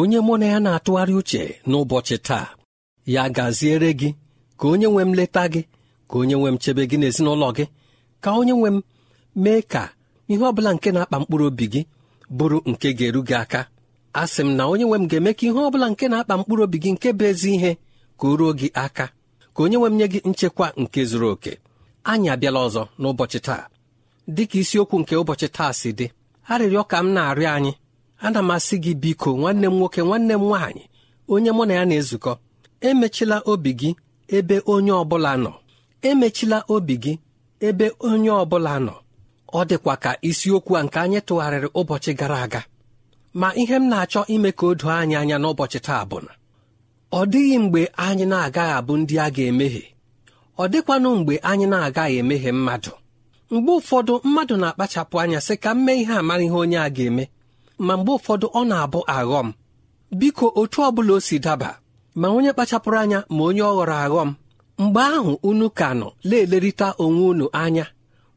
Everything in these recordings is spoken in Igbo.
onye mụ na ya na-atụgharị uche n'ụbọchị taa ya gaziere gị ka onye nwe m leta gị ka onye nwe m chebe gị n'ezinụlọ gị ka onye nwe m mee ka ihe ọ bụla nke na-akpa mkpụrụ obi gị bụrụ nke ga-eru gị aka a sị m na onye nwe m ga-eme ka ihe ọ bụla nke na-akpa mkpụrụ obi gị nke bụ ezi ihe ka o ruo gị aka ka onye nwe m nye gị nchekwa nke zuru oke anyị abịala ọzọ n'ụbọchị taa dịka isiokwu nke ụbọchị taa si dị arịrịọ ka m na-arịọ anyị ana m asị gị biko nwanne m nwoke nwanne m nwaanyị onye mụ na ya na-ezukọ emechila obi gị ebe onye ọ bụla nọ emechila obi gị ebe onye ọ bụla nọ ọ dịkwa ka isiokwu a nke anyị tụgharịrị ụbọchị gara aga ma ihe m na-achọ ime ka o doo anyị anya n'ụbọchị taa bụ na ọ dịghị mgbe anyị na-agaghị abụ ndị a ga-emehie ọ dịkwanụ mgbe anyị na-agaghị emehie mmadụ mgbe ụfọdụ mmadụ na-akpachapụ anya sị ka m mee ihe a mara ihe onye a ga-eme ma mgbe ụfọdụ ọ na-abụ aghọm biko otu ọbụla o si daba ma onye kpachapụrụ anya ma onye ọ ghọrọ aghọm mgbe ahụ unu ka nọ na-elerịta onwe unu anya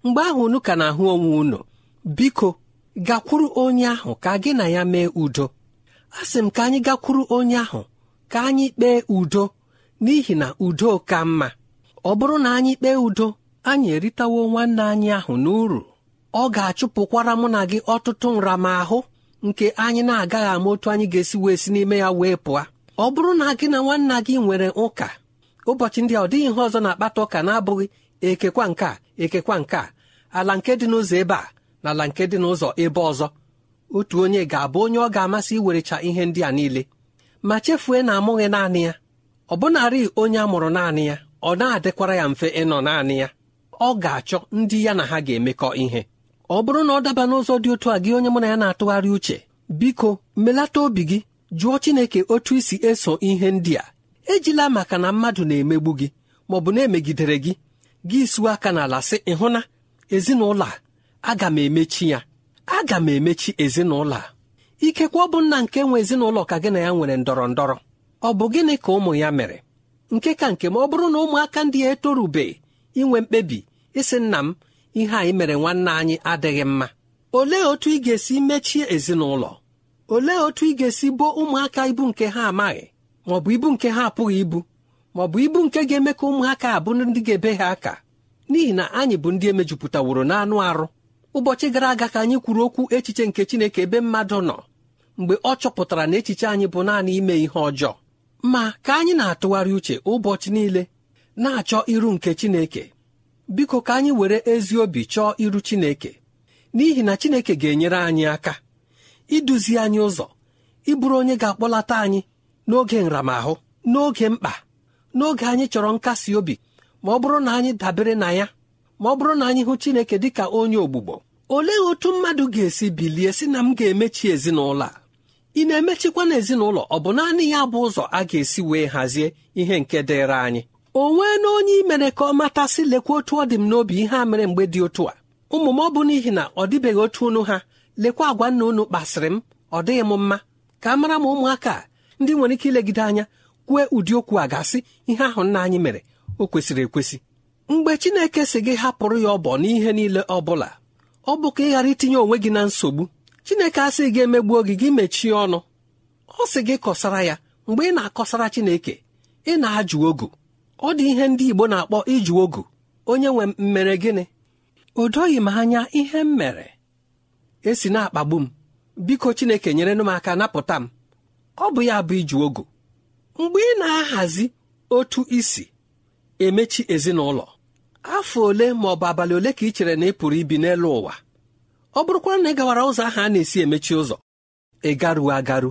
mgbe ahụ unu ka na-ahụ onwe unu biko gakwuru onye ahụ ka gị na ya mee udo a sị m ka anyị gakwuru onye ahụ ka anyị kpee udo n'ihi na udo ka mma ọ bụrụ na anyị kpee udo anyị eritawo nwanne anyị ahụ n'uru ọ ga-achụpụkwara mụ na gị ọtụtụ nramahụ nke anyị na-agaghị ama otu anyị ga-esi wee si n'ime ya wee pụọ ọ bụrụ na gị na nwanna gị nwere ụka ụbọchị ndị a ọ dịghị ihe ọzọ na-akpata ụka na-abụghị ekekwa nke a ekekwa nke a ala nke dị n'ụzọ ebe a na ala nke dị n'ụzọ ebe ọzọ otu onye ga-abụ onye ọ ga-amasị iwerecha ihe ndị a niile ma chefue na amụghị naanị ya ọ bụnarị onye a mụrụ naanị ya ọ na-adịkwara ya mfe ịnọ naanị ya ọ ga-achọ ndị ya na ha ga-emekọ ihe ọ bụrụ na ọ daba n'ụzọ dị otu a gị onye mụ na ya na-atụgharị uche biko melata obi gị jụọ Chineke otu isi eso ihe ndị a ejila maka na mmadụ na-emegbu gị ma ọ bụ na-emegidere gị gị suo aka n'ala sị ịhụna ezinụlọ a aga m emechi ya aga m emechi ezinụlọ a ikekwe ọ bụ nna nke nwe ezinụlọ ka gị na ya nwere ndọrọ ndọrọ ọ bụ gịnị ka ụmụ ya mere nke ka nke ma ọ bụrụ na ụmụaka ndị ya etorubeghị inwe mkpebi ịsị nna m ihe anyị mere nwanne anyị adịghị mma olee otu ị ga-esi mechie ezinụlọ olee otu ị ga-esi boo ụmụaka ibu nke ha amaghị ma ọ bụ ibu nke ha apụghị ibu ma ọ bụ ibu nke ga-eme ka ụmụaka abụ ndị ga-ebe ha aka n'ihi na anyị bụ ndị emejupụtaworo n'anụ arụ ụbọchị gara aga ka anyị kwuru okwu echiche nke Chineke ebe mmadụ nọ mgbe ọ chọpụtara na echiche anyị bụ naanị ime ihe ọjọọ ma ka anyị na-atụgharị uche ụbọchị niile na-achọ iru nke Chineke biko ka anyị were ezi obi chọọ iru Chineke n'ihi na Chineke ga-enyere anyị aka iduzi anyị ụzọ ịbụrụ onye ga-akpọlata anyị n'oge nramahụ n'oge mkpa n'oge anyị chọrọ nkasi obi ma ọ bụrụ na anyị dabere na ya ma ọ bụrụ na anyị hụ Chineke dị ka onye ogbugbo olee otu mmadụ ga-esi bilie si na m ga-emechi ezinụlọ a ị na-emechikwa na ezinụlọ ọ bụ naanị ya bụ ụzọ a ga-esi wee hazie ihe nke dịịrị anyị o nwee na onye imere ka ọ matasị lekwa otu ọ dị m n'obi ihe a mere mgbe dị otu a ụmụ m ọ bụ n'ihi na ọ dịbeghị otu unu ha lekwa agwa nna unu kpasịrị m ọ dịghị m mma ka mara m ụmụaka ndị nwere ike ilegide anya kwue ụdị okwu a gasị ihe ahụ nna anyị mere o kwesịrị ekwesị mgbe Chineke si gị hapụrụ ya ọbọ n'ihe niile ọ bụla ọ bụ ka ị ghara itinye onwe gị na nsogbu Chineke asịghị gị emegbuo gị gị mechie ọnụ ọ sị gị kọsara ya mgbe ị na-akọsara Chineke ị na-ajụ ogu ọ dị ihe ndị Igbo na-akpọ iju ogu onye nwe mmere gịnị o doghị m anya ihe m mere esi na-akpagbu m biko Chineke nyere nụ m aka napụta m ọ bụ ya bụ iju ogu mgbe ị na-ahazi otu isi emechi ezinụlọ afọ ole ma ọ bụ abalị ole ka ị chere na ị pụrụ ibi n'elu ụwa ọ bụrụkwa na ị gawara ụzọ ahụ a na-esi emechi ụzọ ị garuo agaru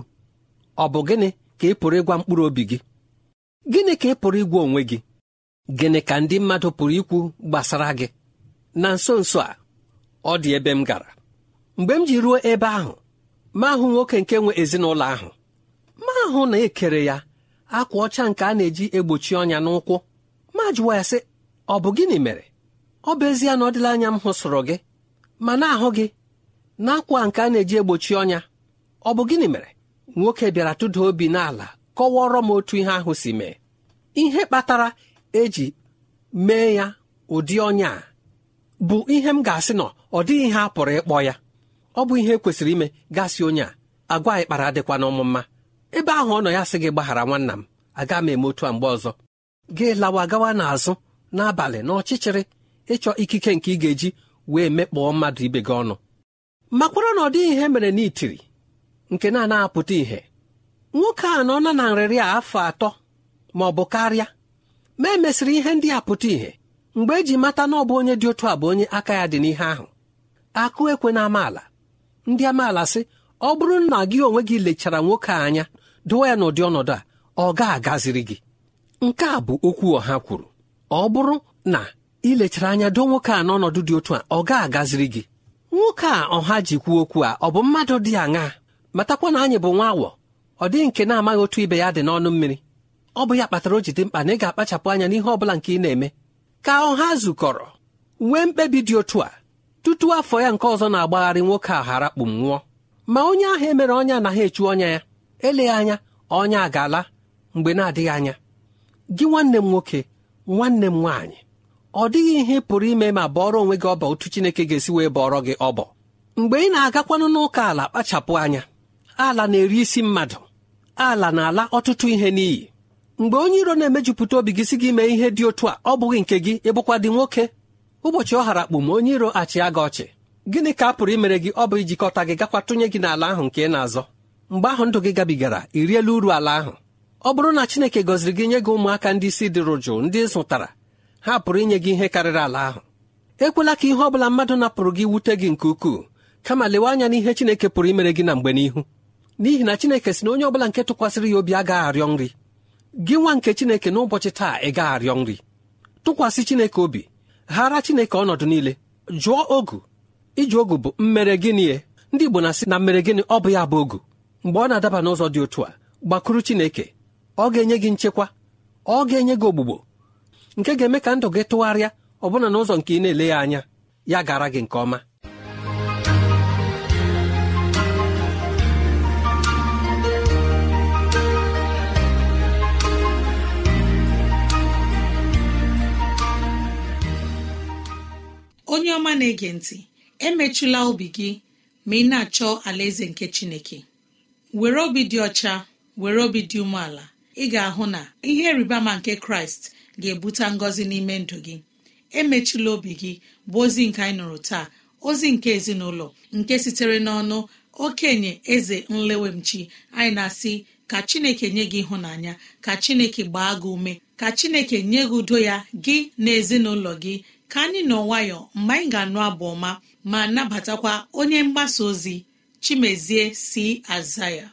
ọ bụ gịnị ka ị pụrụ ịgwa mkpụrụ obi gị gịnị ka ị pụrụ ịgwa onwe gị gịnị ka ndị mmadụ pụrụ ikwu gbasara gị na nso nso a ọ dị ebe m gara mgbe m ji ruo ebe ahụ ma ahụ nwoke nke nwe ezinụlọ ahụ ma ahụ na-ekere ya akwa ọcha nke a na-eji egbochi ọnya n'ụkwụ ma jụwa ya sị ọ bụ gịnị mere ọ bụ ezie na ọ dịla anya m hụsụrụ gị ma na-ahụ gị na nke a na-eji egbochi ọnya ọ bụ gịnị mere nwoke bịara tụda obi n'ala kọwara m otu ihe ahụ si mee ihe kpatara eji mee ya ụdị ọnya a bụ ihe m ga-asị nọ ọ dịghị ihe a pụrụ ịkpọ ya ọ bụ ihe kwesịrị ime gasị onye a agwa ịkpara dịkwa n'ọmụmma ebe ahụ ọ nọ ya sị gị gbaghara nwanna m aga m eme otu a mgbe ọzọ gị lawa gawa n'azụ n'abalị n'ọchịchịrị ịchọ ikike nke ị ga-eji wee mekpọọ mmadụ ibe gị ọnụ makwara na ọ dịghị ihe mere n'itiri nke na anapụta ihe. nwoke a nọ na na nrịrị a afọ atọ ma ọ bụ karịa ma emesịrị ihe ndị a pụta ìhè mgbe eji mata na ọ bụ onye dị otu a bụ onye aka ya dị n'ihe ahụ akụ ekwe na amaala ndị amaala sị ọ bụrụ na gị onwe gị lechara nwoke a anya dụwa ya n'ụdị ọnọdụ a ọ ga-agaziri gị nke a bụ okwu ọha kwuru ọ bụrụ na ilechara anya doo nwoke a n'ọnọdụ dị otu a ọ ga-agaziri gị nwoke a ọha ji kwuo okwu a ọ bụ mmadụ dị aṅaa matakwa na anyị bụ nwa awọ ọ dịghị nke na-amaghị otu ibe ya dị n'ọnụ mmiri ọ bụ ya kpatara o ji dị mkpa na ị ga-akpachapụ anya n'ihe ọ bụla nke ị na-eme ka ọha zukọrọ nwee mkpebi dị otu a tutu afọ ya nke ọzọ na-agbagharị nwoke ahụ arakpụ nwụọ ma onye ahụ emere ọnya anaghị echu ọnya ya eleghị anya ọnya a ga-ala mgbe na-adịghị anya gị nwanne m nwoke nwanne m nwaanyị ọ dịghị ihe pụrụ ime ma bọọrọ onwe gị ọbọ otu Chineke ga-esi wee bọọrọ gị ọbọ mgbe ị na-agakwanụ n'ụka ala kpachapụ anya ala na-eri isi mmadụ ala na-ala ọtụtụ ihe n'iyi mgbe onye iro na-emejupụta obi gị si gị mee ihe dị otu a ọ bụghị nke gị ịbụkwa dị nwoke ụbọchị ọ hara kpụ ma onye iro achịa gị ọchị gịnị ka a pụrụ imere gị ọ bụ ijikọta gị gakwa tụnye gị n'ala ahụ nke ị na-azọ mgbe ahụ ndụ gị gabigara i uru ala ahụ ọ bụrụ na Chineke gọziri gị nye gị ụmụaka ndị isi dịrụ jụụ ndị zụtara ha pụrụ inye gị ihe karịrị ala ahụ ekwela ka ihe ọ bụla mmadụ napụrụ gị wute gị nke ukwuu kama lewe anya n'ihe Chineke pụrụ imere gị na mgbe n'ihu n'ihi na chineke si na onye ọbụla nke tụkwasịrị ya obi agaghị arịọ nri gị nwa nke chineke n'ụbọchị taa ị gaghị arịọ nri tụkwasị chineke obi ghara chineke ọnọdụ niile jụọ ogu iji ogu bụ mmere gịnị e? ndị igbo na-asị na mmere gịnị ọ bụ ya bụ ogu mgbe ọ na-adaba n'ụzọ dị otu a gbakwuru chineke ọ ga-enye gị nchekwa ọ ga-enye gị ogbugbo nke ga-eme ka ndụ gị tụgharịa ọbụna n'ụzọ nke ị na-ele ya anya ya gara gị nke ọma onye ọma na-ege ntị emechula obi gị ma ị na-achọ alaeze nke chineke were obi dị ọcha were obi dị umeala ị ga-ahụ na ihe rịbama nke kraịst ga-ebute ngọzi n'ime ndụ gị emechila obi gị bụ ozi nke anyị nụrụ taa ozi nke ezinụlọ nke sitere n'ọnụ okenye eze nlewemchi anyị na-asị ka chineke nye gị ịhụnanya ka chineke gbaa gị ume ka chineke nye gị udo ya gị na ezinụlọ gị ka anyị nọ nwayọ mgbe anyị ga-anụ abụ ọma ma nabatakwa onye mgbasa ozi chimezie si aza ya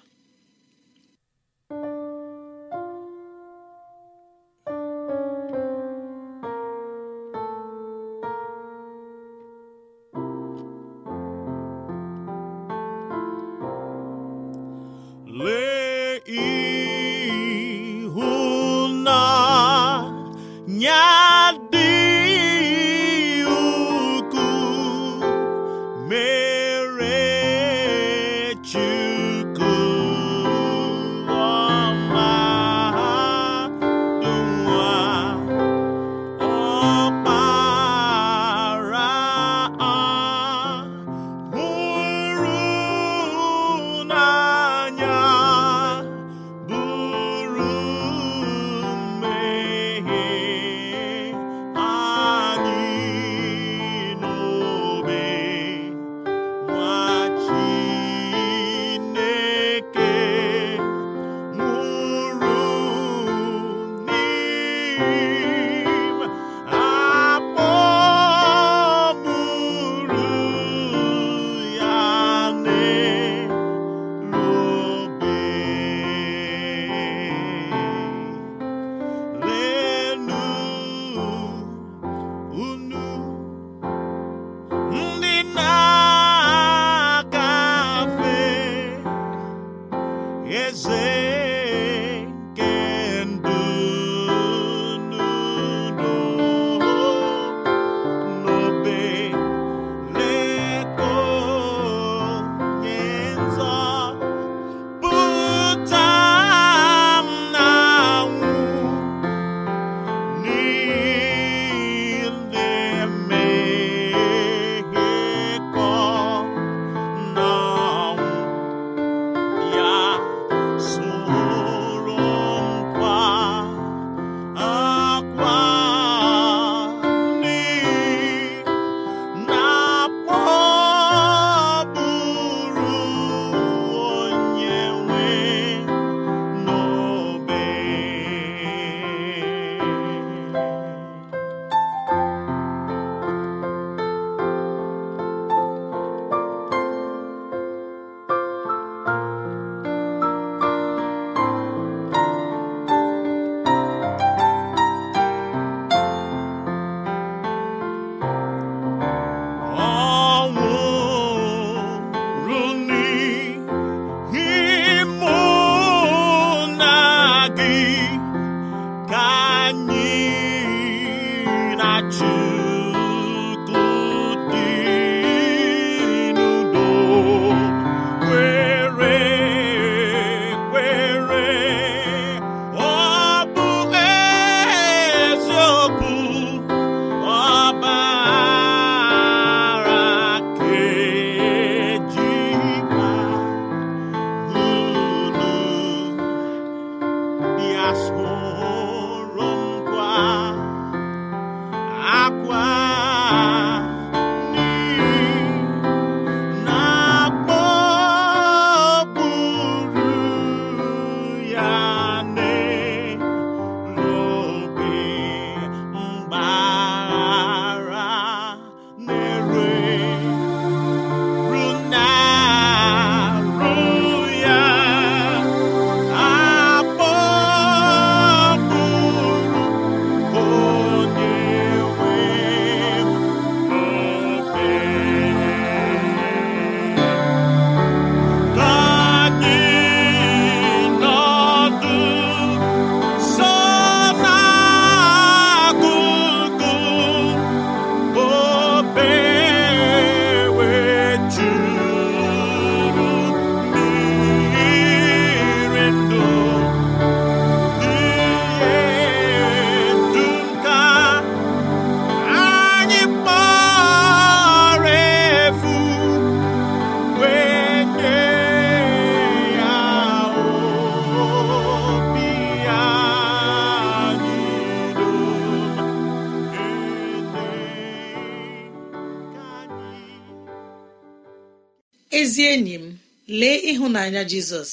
ịhụnanya jizọs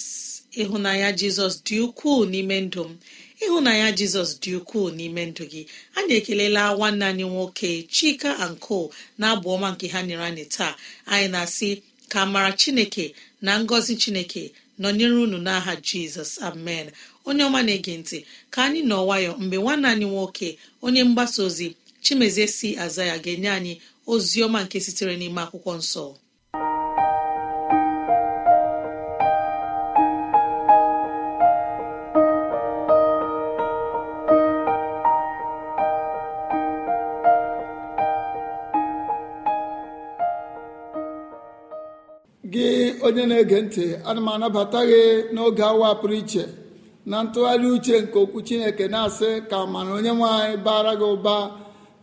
ịhụnanya jizọs dị ukwuu n'ime ndụ m ịhụnanya jizọs dị ukwuu n'ime ndụ gị anyị ekelela nwanne anyị nwoke chika anko na abụ ọma nke ha nyere anyị taa anyị na-asị ka mara chineke na ngọzi chineke nọnyere unu n'aha jizọs amen onye ọma na-ege ntị ka anyị nọ nwayọ mgbe nwanne anyị nwoke onye mgbasa ozi chimezie si aza ya ga-enye anyị ozi ọma nke sitere n'ime akwụkwọ nsọ onye na-ege ntị ana m anabata gị n'oge awa pụrụ iche na ntụgharị uche nke okwu chineke na-asị ka mana onye nwanyị bara gị ụba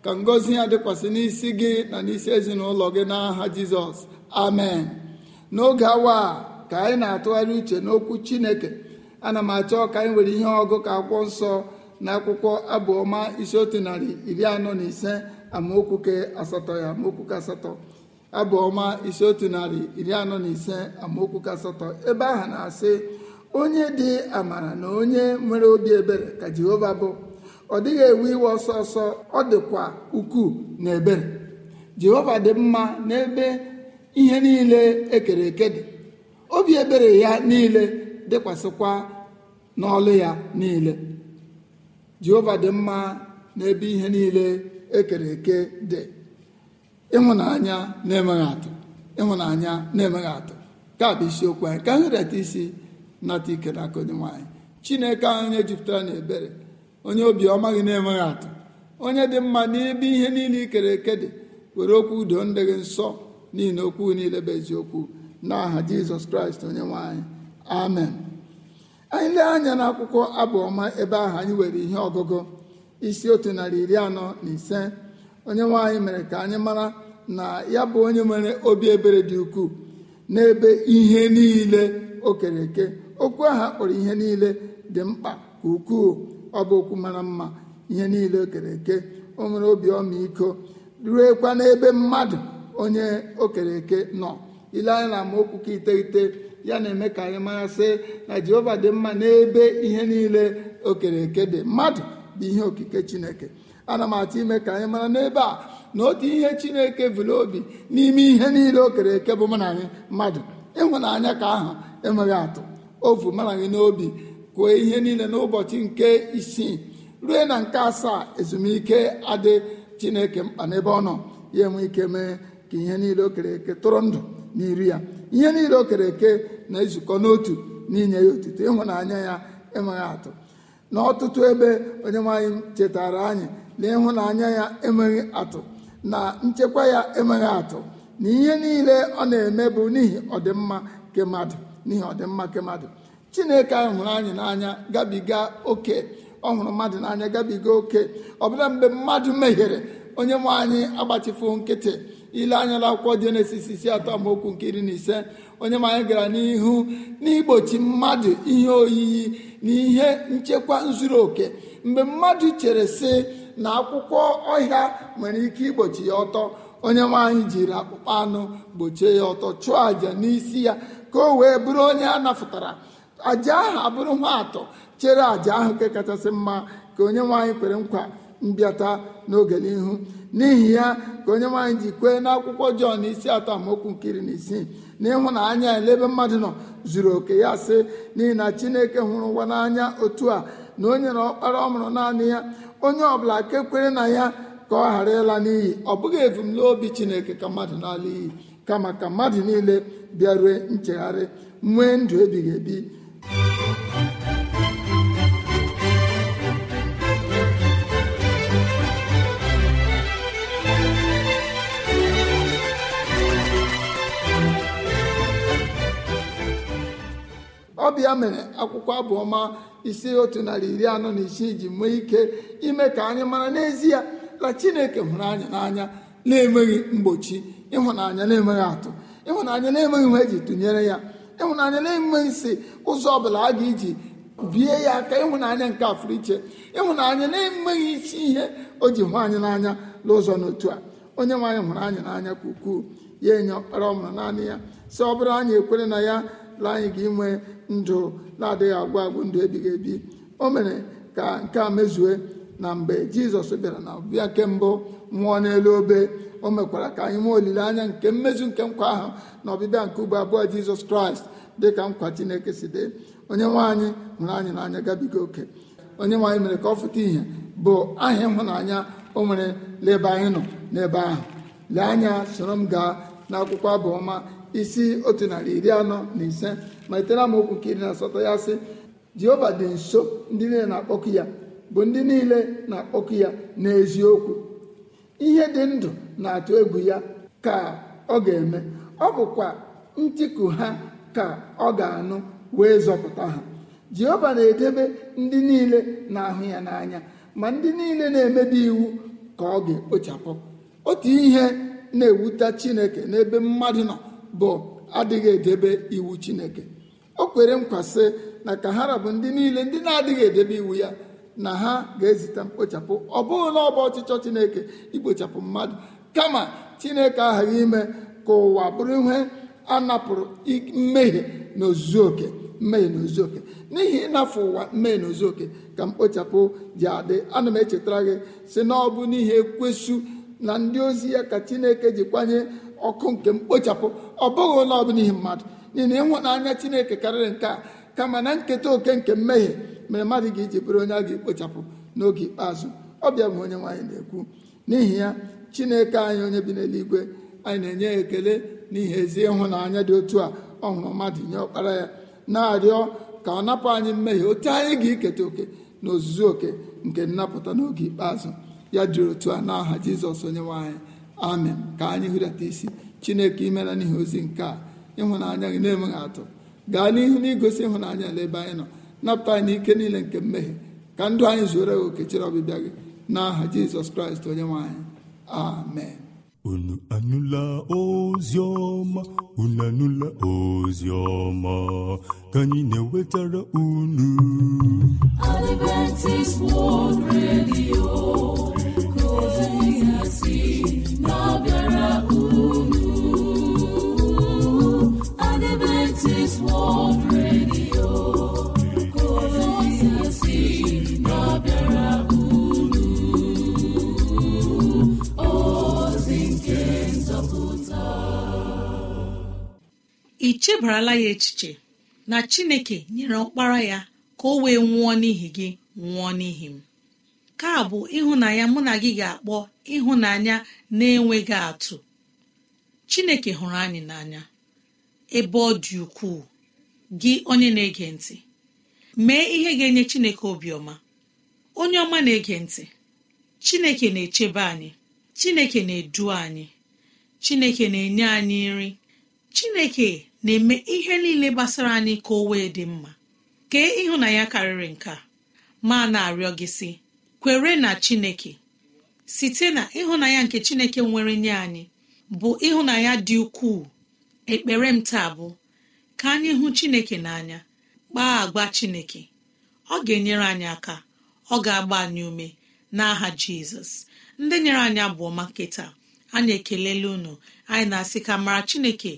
ka ngọzi ya dịkwasị n'isi gị na n'isi ezinụlọ gị n'aha jizọs amen n'oge awa ka anyị na-atụgharị uche n'okwu chineke ana m achọ ka anyị nwere ihe ọgụ ka akwụkwọ nsọ na akwụkwọ abụọma isi otu narị iri anọ na ise amaokwu ke asatọ ya amaokwu ke asatọ abụọma ọma otu narị iri anọ na ise amaokwu kasatọ ebe ahụ na-asị onye dị amara na onye nwere obi ebere ka jehova bụ ọ dịghị ewe iwe ọsọ ọsọ ọ dịkwa ukwuu na ebere jehova dị mma n'ebe ihe niile ekere eke dị obi ebere ya niile dịkwasịkwa n'ọlụ ya niile jehova dị mma n'ebe ihe niile ekere eke dị ịhụnanya na-emeghị atụ ịhụnanya na-emeghị atụ ka bụ isiokwu anyị ka anyị reta isi nata ike n'aka onye nwanyị chineke ahụ onye jupụtara na ebere onye obiọma gị na-emeghị atụ onye dị mma n'ebe ihe niile ikere eke dị were okwu udo ndị gị nsọ niile okwu niile bụ eziokwu n'aha jizọs kraịst onye nwaanyị amen anyị lee anya n'akwụkwọ abụ ọma ebe ahụ anyị were ihe ọgụgụ isi otu narị iri anọ na ise onye nwe mere ka anyị mara na ya bụ onye nwere obi ebere dị ukwuu n'ebe ihe niile o kere eke okwu aha kpọrọ ihe niile dị mkpa ka ukwuu ọ bụ okwu mara mma ihe niile o kere eke o nwere obi ọmịiko ruekwa n'ebe mmadụ onye o kere eke nọ ile anya na amaokwu ka iteghete ya na-eme ka anyị mara sị na jehova dị mma n'ebe ihe niile o kere eke dị mmadụ bụ ihe okike chineke ana m atụ ime ka anyị mara n'ebe a na otu ihe chineke vụrụ obi n'ime ihe niile o kere eke bụ mụ na anyị mmadụ ịhụnanya ka ahụ enweghị atụ ovu mara anyị n'obi kwuo ihe niile n'ụbọchị nke isii rue na nke asaa ezumike adị chineke mkpa n'ebe ọ nọ ya enwe ike mee ka ihe niile o kere eke tụrụ ndụ n'iri ya ihe niile o kere eke na-ezukọ n'otu n'inye ya otuto ịhụnanya ya enweghị atụ n'ọtụtụ ebe onye nwe chetara anyị na ịhụnanya ya enweghị atụ na nchekwa ya enweghị atụ na ihe niile ọ na-eme bụ n'ihi ọdịmma nke mmadụ n'ihi ọdịmma nke chineke anyị hụrụ anyị n'anya gabiga oke ọ hụrụ mmadụ n'anya gabiga oke ọbụla mgbe mmadụ mehiere onye nwe anyị agbachifu nkịtị ile anya akwụkwọ jenesis isi atọ amaokwu nke iri na ise onye nwe anyị gara n'ihu n'igbochi mmadụ ihe oyiyi na ihe nchekwa zuru oke mgbe mmadụ chere sị na akwụkwọ ọhịa nwere ike igbochi ya ọtọ onye nwaanyị jiri akpụkpọ anụ gbochie ya ọtọ chụọ àjà n'isi ya ka o wee bụrụ onye a napụtara àjà ahụ abụrụ nwa atọ chere àjà ahụ nke kachasị mma ka onye nwaanyị kwere nkwa mbịata n'oge n'ihu n'ihi ya ka onye nwaanyị ji kwee akwụkwọ Jọn isi atọ amaokwu nkiri na isii na anya elebe mmadụ nọ zuru oke ya sị n'ihi na Chineke hụrụ ụwa n'anya otu a na o nyere ọkpara ọ mụrụ naanị ya onye ọbụla ke kwere na ya ka ọ ghara ịla n'iyi ọ bụghị ebumnobi chineke ka mmadụ n'ala iyi kama ka mmadụ niile bịarue nchegharị nwee ndụ ebighị ebi ọbịa mere akwụkwọ abụọma isi otu narị iri anọ na isii ji mee ike ime ka anyị mara n'ezie na chineke hụrụ anya n'anya na-enweghị mgbochi ịhụnanya na atọ atụ ịhụnanya na emeghị ihe eji tụnyere ya ịhụnanya na-enweghị si ụzọ ọbụla a ga-eji bie ya aka ịhụnanya nke afụrụ iche ịhụnanya na-enweghị isi ihe o ji hụ anyị n'anya n'ụzọ n'otu a onye nwe hụrụ anya n'anya ka ukwuu ya enye ọkpara ọmụrụ naanị ya si ọ bụrụ anyị ekwere na ya la anyị ga inwe ndụ na-adịghị agwụ agwụ ndụ ebighị ebi o mere ka nke a mezue na mgbe jizọs bịara na ọbịa nke mbụ nwụọ n'elu obe o mekwara ka anyị nwee olileanya nke mmezu nke nkwa ahụ na ọbịbịa nke ugbo abụọ jizọs kraịst dị ka nkwa chineke si dị onye nwanyị hụrụ anyị n'anya gabiga oke onye nwaanyị mere ka ọ fụta ihe bụ aha ịhụnanya o nwere n'ebe anyị nọ n'ebe ahụ lee anya soro m gaa n'akwụkwọ abụ ọma isi otu narị iri anọ na ise malitere amaokwu nke iri na asatọ ya sị jehova dị nso ndị niile na-akpọkụ ya bụ ndị niile na-akpọkụ ya n'eziokwu ihe dị ndụ na-atụ egwu ya ka ọ ga-eme ọ bụkwa ntiku ha ka ọ ga-anụ wee zọpụta ha jehova na-edebe ndị niile na-ahụ ya n'anya ma ndị niile na-emebi iwu ka ọ ga-ekpochapụ otu ihe na-ewuta chineke n'ebe mmadụ nọ bụ adịghị edebe iwu chineke o kwere nkwa sị na ka ha ndị niile ndị na-adịghị edebe iwu ya na ha ga-ezite mkpochapụ ọ bụghị na ọba ọchịchọ chineke ikpochapụ mmadụ kama chineke aghaghị ime ka ụwa bụrụ ihe a napụrụ mmehie na ozuzuoke mmehie na n'ihi ịnafụ ụwa mmehie na oke ka mkpochapụ ji adị ana m echetara gị si na ọ bụ n'ihi ekwesụ na ndị ozi ya ka chineke ji kwanye ọkụ nke mkpochapụ ọ bụghị ụlọ ọbụla ihe mmadụ n'ihi na ịhụnanya chineke karịrị nke a kama na nketa oke nke mmehie mere mmadụ ga-eji bụrụ onye a ga-ekpochapụ n'oge ikpeazụ ọ bịa bụ onye nwaanyị na-ekwu n'ihi ya chineke anyị onye bi n'eluigwe anyị na-enye ya ekele n'ihi ezi ịhụnanya dị otu a ọ hụrụ mmadụ nye ọkpara ya na-arịọ ka ọ napụ anyị mmehie otu anyị ga-eketa oke na oke nke nnapụta n'oge ikpeazụ ya dịrị otu a n'aha aha jizọs onye nwe amen ka anyị hụrịata isi chineke imela n'ihe ozi nke a ịhụnanya gị na-enweghị atụ gaa n'ihu na igosi ịhụnanya n'ebe anyị nọ napụta anyị n'ike niile nke mmehie ka ndụ anyị zuoro gị okechere chere ọbịbịa gị n'aha jizọs kraịst onye nwanyị. amen unu anụla ozi ọma unu anụla ozi ọma ka anyị na-ewetara unu Adventist World Radio ka ozi ya si ị chebarala ya echiche na chineke nyere ọkpara ya ka o wee nwụọ n'ihi gị nwụọ n'ihi m ka bụ ịhụnanya mụ na gị ga-akpọ ịhụnanya na-enweghị atụ chineke hụrụ anyị n'anya ebe ọ dị ukwuu gị onye na-ege ntị mee ihe ga-enye Chineke obiọma onye ọma na-ege ntị Chineke na-echebe anyị Chineke na-edu anyị Chineke na-enye anyị nri Chineke na-eme ihe niile gbasara anyị ka o wee dị mma kee ya karịrị nka ma na-arịọ gị si kwere na Chineke site na ịhụnanya nke Chineke nwere nye anyị bụ ịhụnanya dị ukwuu ekpere m taa bụ ka anyị hụ chineke n'anya kpaa agwa chineke ọ ga-enyere anyị aka ọ ga-agba anyị ume n'aha jizọs ndị nyere anyị abụọ ọma taa anyị ekelela unu anyị na-asị ka mara chineke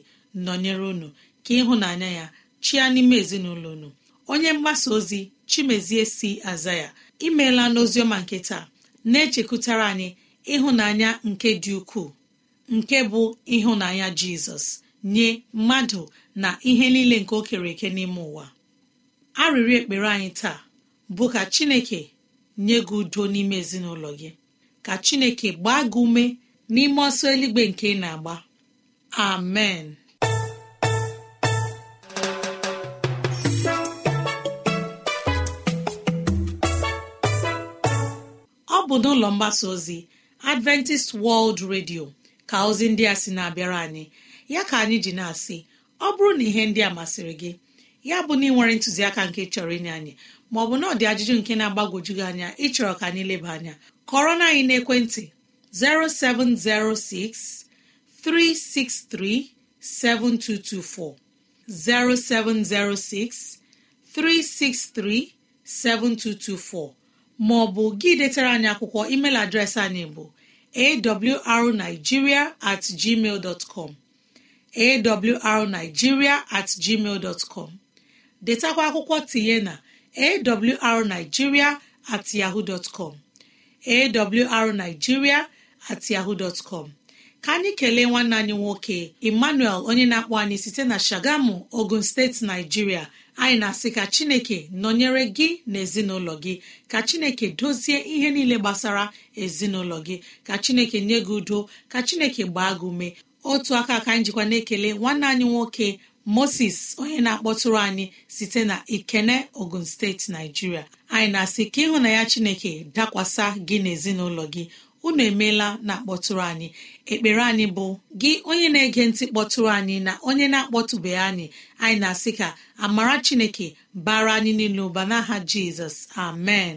nọnyere unu ka ịhụnanya ya chia n'ime ezinụlọ unu onye mgbasa ozi chimezie si aza ya imeela n'oziọma nke taa na-echekwutara anyị ịhụnanya nke dị ukwuu nke bụ ịhụnanya jizọs nye mmadụ na ihe niile nke o kere eke n'ime ụwa arịrịọ ekpere anyị taa bụ ka chineke nye gị udo n'ime ezinụlọ gị ka chineke gbaa gị ume n'ime ọsọ eluigbe nke ị na-agba amen ọ bụ n'ụlọ mgbasa ozi adventist world radio ka ozi ndị a sị na-abịara anyị ya ka anyị ji na-asị ọ bụrụ na ihe ndị a masịrị gị ya bụ na ị nwere ntụziaka nke chọrọ inye anyị ma ọ bụ na ọ dị ajụjụ nke na-agbagwoju gị anya ịchọrọ ka anyị leba anya kọrọ na anyị naekwentị 0706 363 7224 0706 363 7224 ma ọ bụ gị detara anyị akwụkwọ email adreesị anyị bụ awrnigeria at gmail dot com awrnigeria at gmail detakwa akwụkwọ tinye na awrnigeria at yahoo at yahoo ka anyị kelee nwanne anyị nwoke emmanuel onye na-akpọ anyị site na shagamu ogun steeti naijiria anyị na-asị ka chineke nọnyere gị na ezinụlọ gị ka chineke dozie ihe niile gbasara ezinụlọ gị ka chineke nye gị udo ka chineke gbaa gị ume otu aka aka njikwa na-ekele nwanne anyị nwoke moses onye na-akpọtụrụ anyị site na ikene ogun steeti naijiria anyị na-asị ka ịhụ na ya chineke dakwasa gị n'ezinụlọ gị unu emeela na-akpọtụrụ anyị ekpere anyị bụ gị onye na-ege ntị kpọtụrụ anyị na onye na-akpọtụbeghị anyị anyị na-asị ka amara chineke bara anyị niile ụba n'aha jizọs amen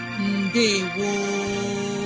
mbe gboo